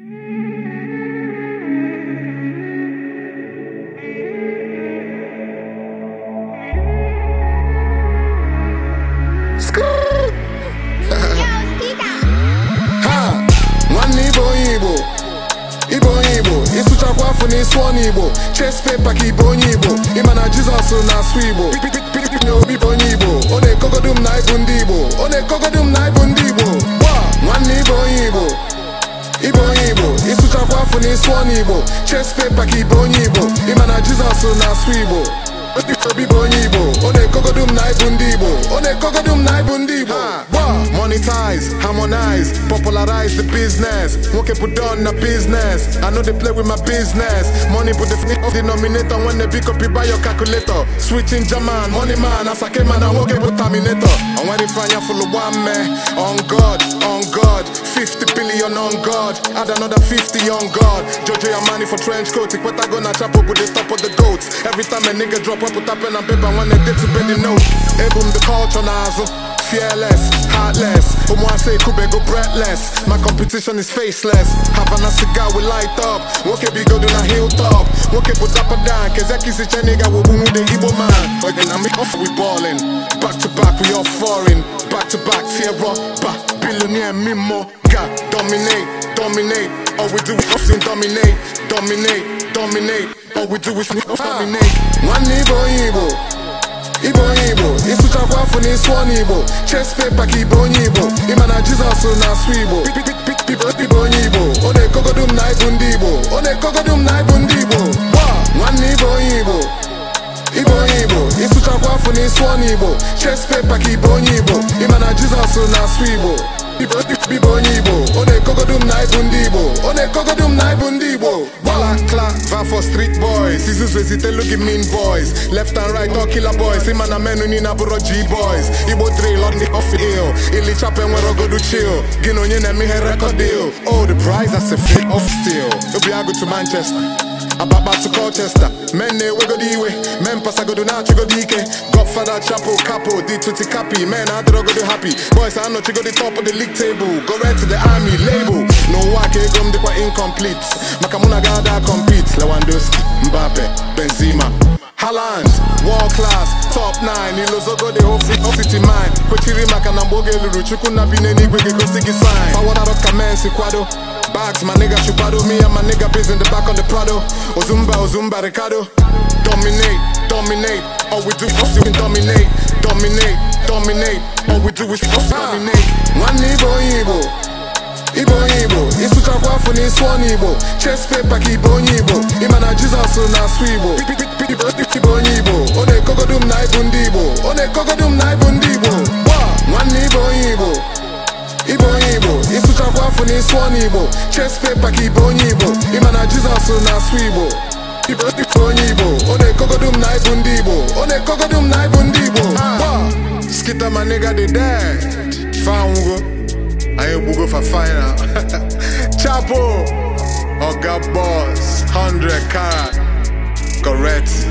ịsụchakwa afọ ọnụ igbo chest paper ka onye igbo ịma na jizọs na asụ igbo na obi bụ onye igbo ọ na-ekogodu m na ndị igbo ọ na-ekogodu m na ndị sụọ igbo chest paper ka onye Igbo ịma na Jizọs na-asụ Igbo obi bụ onye Igbo ọ na-ekogodum na ịbụ ndị Igbo ọ na-ekogodum na ibu ndị Igbo harmonize, harmonize, popularize the business. Nwoke put on na business. I know they play with my business. Money put the f- denominator when they pick up you buy your calculator. Switching German, money man, Asake man, I nwoke put terminator. And when they find full of one man, on God, on God, 50 billion on God, add another 50 on God. Jojo your money for trench coat, Ikweta go na chapo put the top of the goats. Every time a nigga drop, I put up pen and paper when they did to bend the note. Hey boom, the culture now. fearless, heartless. say Omuase go breathless. My competition is faceless. Havana cigar we light up. Woke bigo do na hilltop. Woke put up a down. Kezeki si cheniga wo bumu de Igbo man. but Again, I'm off, we ballin'. Back to back, we all foreign. Back to back, Sierra, back. Billionaire, Mimo, God, dominate, dominate. All we do is often dominate, dominate, dominate. All we do is dominate. Ah. One Igbo, Igbo. sụọ paper ka ibe onye Igbo ịma na Jizọs na-asụ Igbo ibe onye Igbo ọ na ekogodo m na ịbụ ndị Igbo ọ na-ekogodu ịbụ ndị Igbo nwanne ibe onye Igbo ibe onye Igbo ịsụchakwa afọ na ịsụọ n'Igbo chest paper ka ibe onye Igbo ịma na Jizọs na-asụ Igbo bibo onye igbo ọ na-ekogodu m na ibu ndị igbo ọ na-ekogodu m na ibu ndị igbo gbala klava street boys izuzu ezitelu gị mean boys left and right all boys ịma na menu niile abụrọ g boys igbo drill on the off ill ilichapa enwere ogodu chill gị na onye na-eme ihe record deal old the prize as a off obi agụ manchester Ababa to Colchester Men na-ewegodi iwe Men pasagodo na-achịgodi ike Godfather Chapo Capo di 20 kapi Men adịrọgodi happy Boys anọchigodi top of the league table Go di to the army label N'ụwa ka ego m dịkwa incomplete Maka mụ na gada compete Lewandowski, Mbappe, Benzema Haaland, world class, top 9 Ilozogo the whole Kwechiri maka na mgbe oge lụrụ Chukwu na sign ka Bags, my nigga Chupado Me and my nigga biz in the back on the Prado Ozumba, Ozumba, Ricardo Dominate, dominate All we do is fucking dominate Dominate, dominate All we do is fucking dominate Nwanne Igbo Igbo Igbo Igbo Ịsụchakwa afọ n'ịsụ ọnụ Igbo Chest paper ka Igbo onye Igbo Ịma na Jizọs na-asụ Igbo Igbo n'isi ọnụ Igbo chest paper ka ibe onye Igbo ịma na Jizọs na-asụ Igbo ibe onye Igbo ọ na-ekogodu m na ịbụ ndị Igbo ọ na-ekogodu m na ịbụ ndị Igbo skita ma nigga di dead fanwugo anyị gbugo fa final chapo oga boss 100 karat correct